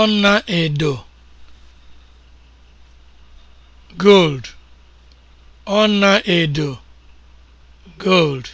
ọlaedo gold ọlaedo gold